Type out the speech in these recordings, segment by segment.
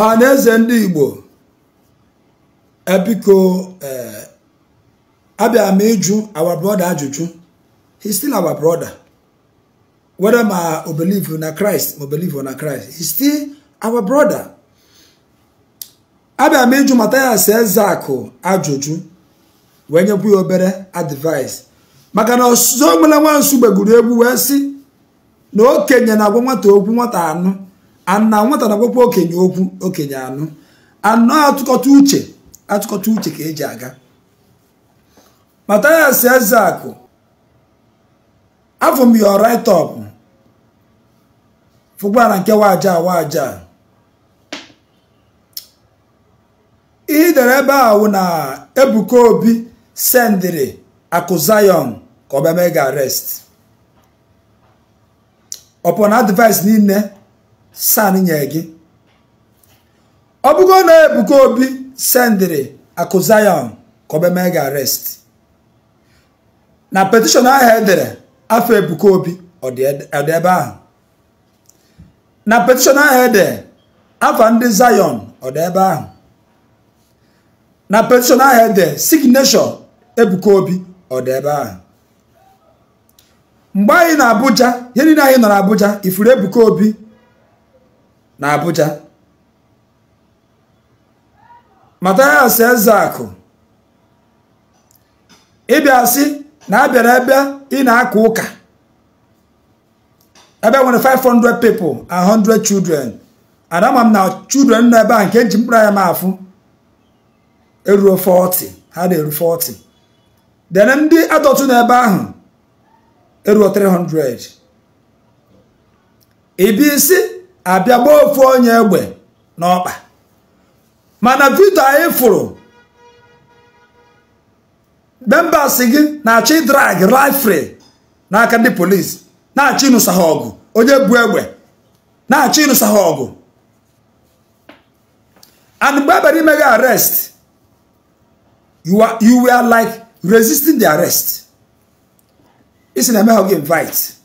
ọha na eze ndị igbo ebiko e, abịara m ịjụ our brother ajụjụ he's still our brother whether ma o believe na Christ ma o believe na Christ he's still our brother abịara m ịjụ Mathias ajụjụ wee nyekwu ya obere advice maka na ọsụzụ onwere nwansu gbegburu egwu wee sị na okenye na-agwa nwata okwu nwata anụ ana nwata na-agwakwa okenye okwu okenye anụ anọ atụkọta uche atụkọta uche ka eji aga Mathias Ezeaku afọ m ya right up fụgbara nke waja waja ihe dere ebe a wụ na Ebuka Obi sendiri Akụ Zion ka ọ mee ga arrest ọpụna advice niile san nye gị ọ bụgo na Ebuka Obi sendịrị akụ Zion ka ọ mee na petishọn ahụ edere afọ Ebuka Obi ọ dị ebe ahụ na petishọn ahụ edere afọ ndị Zion ọ dị ebe ahụ na petishọn ahụ edere signeshọn Ebuka Obi ọ dị ebe ahụ mgbe anyị na Abuja ihe niile anyị nọ na Abuja ifuru Ebuka Obi na Abuja Mathias Ezeaku ịbịa sị na a bịara ebe ị na-aka ụka ebe nwere 500 people and 100 children and ama m na children nọ ebe a nke eji mkpụrụ anya m afụ eruo 40 ha na-eru 40 then ndị adọtụ n'ebe ahụ eruo 300 Ibi isi abịa gbaa ofu onye egbe n'ọkpa mana vito anyị fụrụ membas gị na-achọ ịdrag rifri n'aka ndị polis na-achọ ịnụsa ha ọgụ onye bu egbe na-achọ ịnụsa ha ọgụ and mgbe ebere ime gị arrest you were like resisting the arrest isi na-eme ha gị invite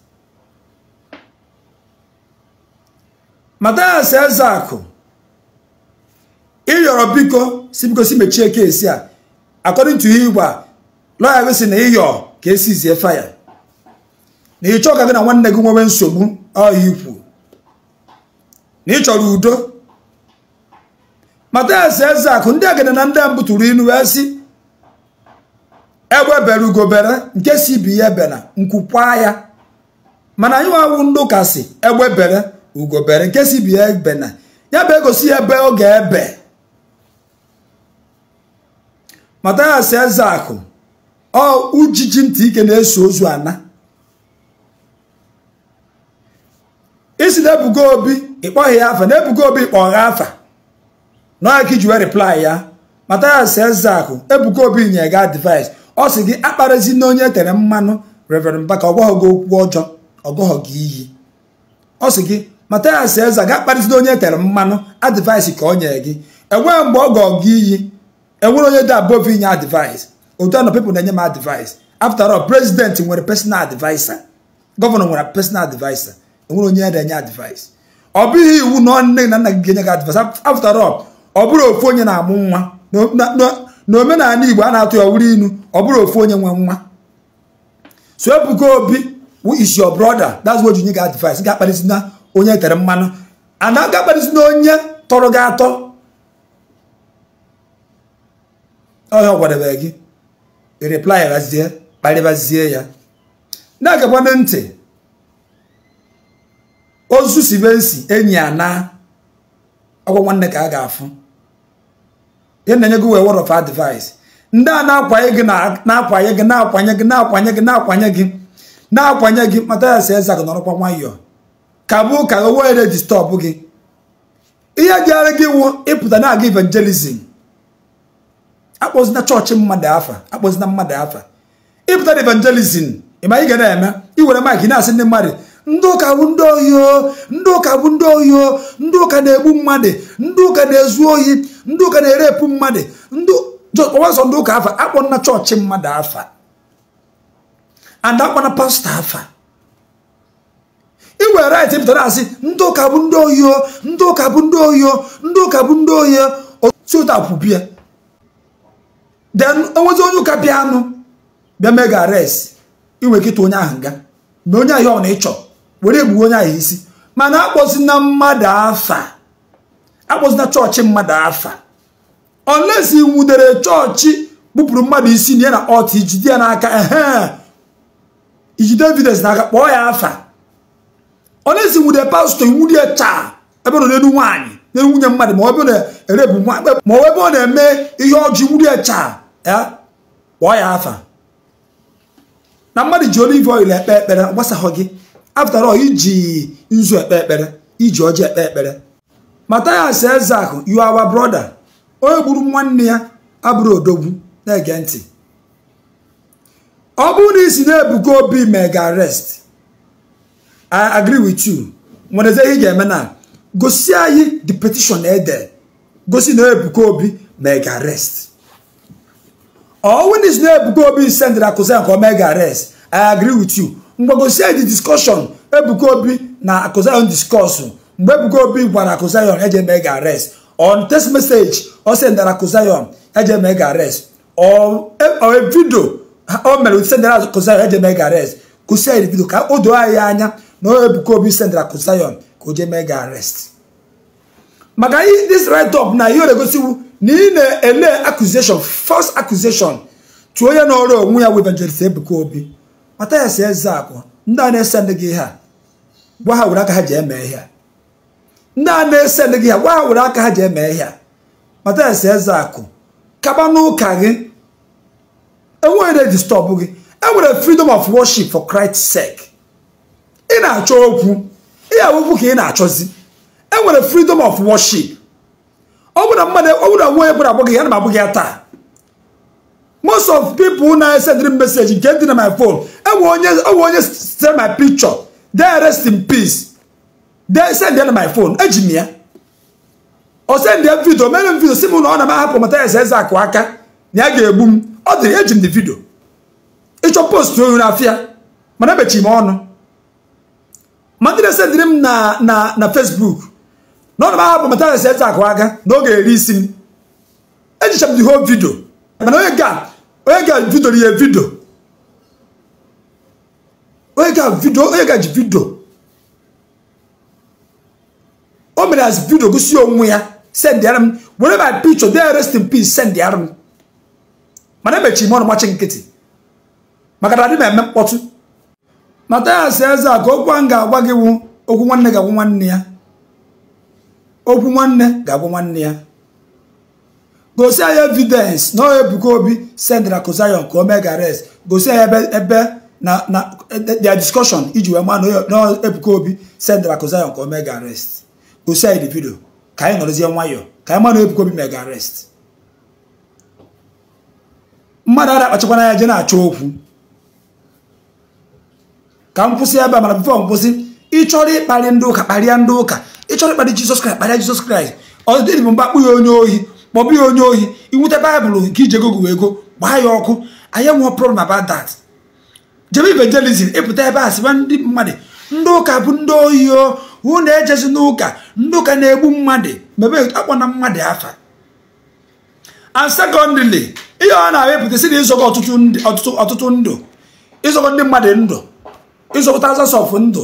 eze akụ ịyọrọ biko si biko si mechie esi a according to igba lọya gị si na ịyọ ka esizie faya na ị e ka gị na nwanne gị nwewe nsogbu ọhịa ikwu na ị chọrọ udo eze akụ ndị agịna na ndị mbụ tụrụ ilu wee sị egbe bere ugobere nke si bi ya bena nkwukwa ya mana anyị nwa awụ ndị ụka si egbe bere ugobere nke si bi ebe na ya bụ egosi ya ebe ọ ga-ebe eze akụ ọ ujiji ntị ike na-eso ozu ana isi na ebugo obi ịkpọghị ya afa na ebugo obi ịkpọghị afa n'aka iji wee reply ya matayas akụ ebugo obi nye ga advice ọ sị gị akparịzi na onye e tere mmanụ reverend baka ọgwaghị gị okwu ọjọọ ọgọghọ gị iyi ọ sị gị Mathias Eze ga akparịsida onye e tere mmanụ advice ka o nyere gị enwere mgbe ọ gọọ gị iyi enwere onye dị above inye advice otu anọ people na-enye m advice after prezidenti nwere personal adviser gọvanọ nwere personal adviser enwere onye na-enye advice ọ bụghị iwu na nne na nna gị ga-enye gị advice after ọ bụrụ ofu onye na-amụ nwa na omenala Igbo a na-atụ ya wuri inu ọ bụrụ ofu onye nwe nwa so Ebuka Obi is your brother that's what you need advice ga akparịsida onye tere mmanụ ana gakparịsị na onye tọrọ gị atọ ọhịa ọ gị replai razie kparịbazie ya na-agakwana ntị ozu sibensi enyi ana na nwanne ka a ga-afụ ihe na-enye gị wee word of advice ndị a na-akwanye gị na-akwanye gị na-akwanye gị na-akwanye gị na-akwanye gị na mata ya si eze gị nọrọkwa nwayọọ kagbu ka o were distọbụ gị ihe jere gị wụ ịpụta na-aga evangelizim akpọzina chọọchị mmadụ afa akpọzina mmadụ afa ịpụta na evangelizim ịma ị ga na-eme iwere maik na-asị ndị mmadụ ndị ụka bụ ndị ohi ndị ụka bụ ndị ohi ndị ụka na-egbu mmadụ ndị ụka na-ezu ohi ndị ụka na-erepụ mmadụ ọwazọ ndị ụka afa akpọ na chọọchị mmadụ afa and akpọ pastọ afa iwere right pụtara asị ndị ụka bụ ndị oyo ndị ụka bụ ndị oyo ndị ụka bụ ndị Otu oyo otutapụbia den onwezi onye ụka bịa anụ bịa mega arrest iwe kịta onye ahụ ga na onye ahịa ọ na ịchọ were egbuwe onye ahụ isi mana akpọzina mmadụ afa akpọzina chọọchị mmadụ afa unless nwudere chọọchị gbupụrụ mmadụ isi na ya na ọt ijide ya n'aka ehe iji evidence n'aka kpọọ ya afa onye si nwude pastọ iwu chaa ebe nọ n'elu nwaanyị n'elu nwunye mmadụ ma ọ bụ na-erebu nwa ma ebe ọ na-eme ihe ọjọọ iwu chaa ya kpọọ ya afa na mmadụ ji olive oil ekpe ekpere gbasaghọ gị afụtara ọ iji nzu ekpe ekpere iji ọjị ekpe ekpere Mathias Ezak you are our brother onye gburu nwanne ya abụrụ odogwu na-ege ntị ọ bụrụ na isi na-ebuga obi mega arrest i agree with you nwere eze ihe ga-eme na gosi anyị the petition ede gosi na Ebuka Obi ma ị ga-arest. arrest owins na Ebuka Obi send Akuza nke ga-arest. i agree with you mgbe gosi anyị the discussion Ebuka Obi na Akuzayon discuss mgbe Ebuka Obi gwara Akuzayon eje mega arrest on text message ọ sendara Akuzayon eje mega arrest or a video o mere sendara Akuzayon eje ga-arest. gosi anyị the video ka o doo anyị anya na Ebuka Obi sendara Kosiyon ka o jee mee gị arrest maka this write up na ihe ọ na-egosiwu na ị na-ele accusation first accusation tụọ ya n'ọrụ onwe ya webanjelist Ebuka Obi mata ya si eze akụ ndị a na-ese ndị gị ihe a gwa ha were aka ha ji eme ihe a ndị a na-ese gị ha gwa ha were aka ha ji eme ihe mata ya si eze akụ kaba n'ụka gị enweghị na-edistọbụ gị enwere freedom of worship for Christ's sake ị na-achọ okwu ya awụkwu ka ị na-achọzi e nwere freedom of worship ọ bụrụ na mmadụ ọ bụrụ na nwa agbụghị ya na m agbụghị ya taa most of people na-esendịrị m meseji nke dị na my phone enwe onye enwe onye sitere my picture there rest in peace there send ya na my fon eji m ya ọ send ya vidio mere m vidio si m na ọ na m ahapụ mata ya eze akụ aka na ya ga-egbu m ọ dịrị eji m dị vidio ịchọ post oyi n'afịa mana emechi m ọnụ na-ese sendiri m na na na fesbuk na ọnụ m ahapụ na eze akụ aka na oge eri isi m ejicha m the whole video mana onye ga onye ga vidoro ya vidio onye ga vidio onye ga ji vidio o mere as vidio gosi onwe ya sendịara m were my picture there rest in peace sendịara m mana emechiri m ọnụ machi nkịtị maka na adị m eme mkpọtụ sị eze a ka okwu a m ga-agwa gị wu okwu nwanne ga-agwa nwanne ya okwu nwanne ga-agwa nwanne ya gosi anyị evidence na ọ ebuka obi sendra kozayon ka o mee gares gosi anyị ebe na na their discussion iji wee maa na ebuka obi sendra kozayon ka o mee gares gosi anyị divido ka anyị nọrọzie nwayọọ ka anyị maa na ebuka obi mee gares mmadụ a na-akpachakwana ya je na-achọ okwu ka m kwụsị ebe a mana bifọ m ịchọrọ ịkparị ndị ụka kparịa ndị ụka ịchọrọ ịkparị jizọs kraịst kparịa jizọs kraịst ọ bụ mgbe ya onye ohi kpọbụ ya onye ohi iwute baịbụl nke iji ego gụwa ego gbaa ya ọkụ anyị nwụọ problem about that jebe evangelizm ịpụta ebe a sịwa ndị mmadụ ndị ụka bụ ndị ohi o hụ na ejezi n'ụka ndị ụka na-egbu mmadụ mebe akpọ na mmadụ afa and secondly ihe ọ na-awepụta si na ịzọgọ ọtụtụ ndụ ịzọgọ ndị mmadụ ndụ ịzọpụta azasọfụ ndụ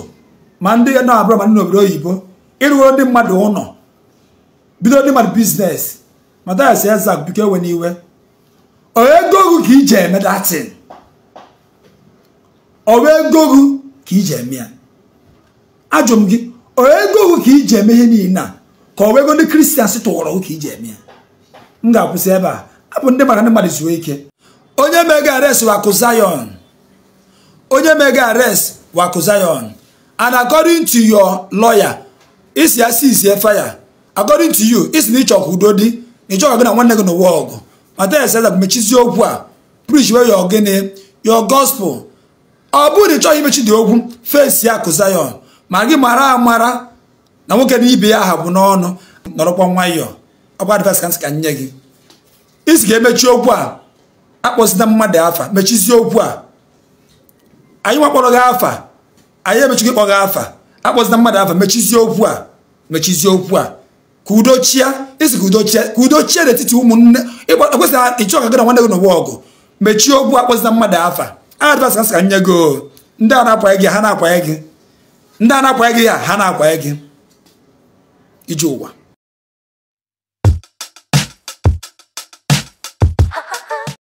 ma ndị ya na abụrụ ma ndị n'obodo oyibo ịrụgoro ndị mmadụ ụlọ bido ndị mmadụ biznes matayas eza biko ewe n'iwe onye gogu ka iji eme datin onye gogu ka iji eme ya ajụ m gị onye gogu ka iji eme ihe niile a ka o ego ndị kristians tụwọrọ ka iji eme ya m ga-akwụsị ebe a abụ ndị maka ndị mmadụ zuo ike onye megara esiwa akụ zayon onye mega arrest waku zion and according to your lawyer isi ya si isie fire according to you isi na ịchọkwa udo dị na ịchọkwa gị na nwanne gị n'ụwa ọgụ mata ya da mechizi okwu a preach wey your gịnị gospel ọ bụrụ na ịchọghị imechi dị okwu fesi ya ku zion ma gị mara amara na nwoke na ibe ya aha bụ n'ọnụ nọrọkwa nwayọọ ọ bụ ka nsị ka nye gị isi ga-emechi okwu a akpọzida mmadụ afa mechizie okwu a anyị wakpọrọ gị afa anyị emechigo ịkpọ gị afa akpọzina mmadụ afa mechizie okwu a mechizie okwu a ka udo chia esi ka udo chia ka udo n'etiti ụmụnne ekwesịghị ịchọ ka gị na nwanne gị n'ụwa ọgụ mechie okwu akpọzina mmadụ afa advance ka sị ka nye gị ndị a na-akwanye gị ha na-akwanye gị ndị a na-akwanye gị ya ha na-akwanye gị ije ụwa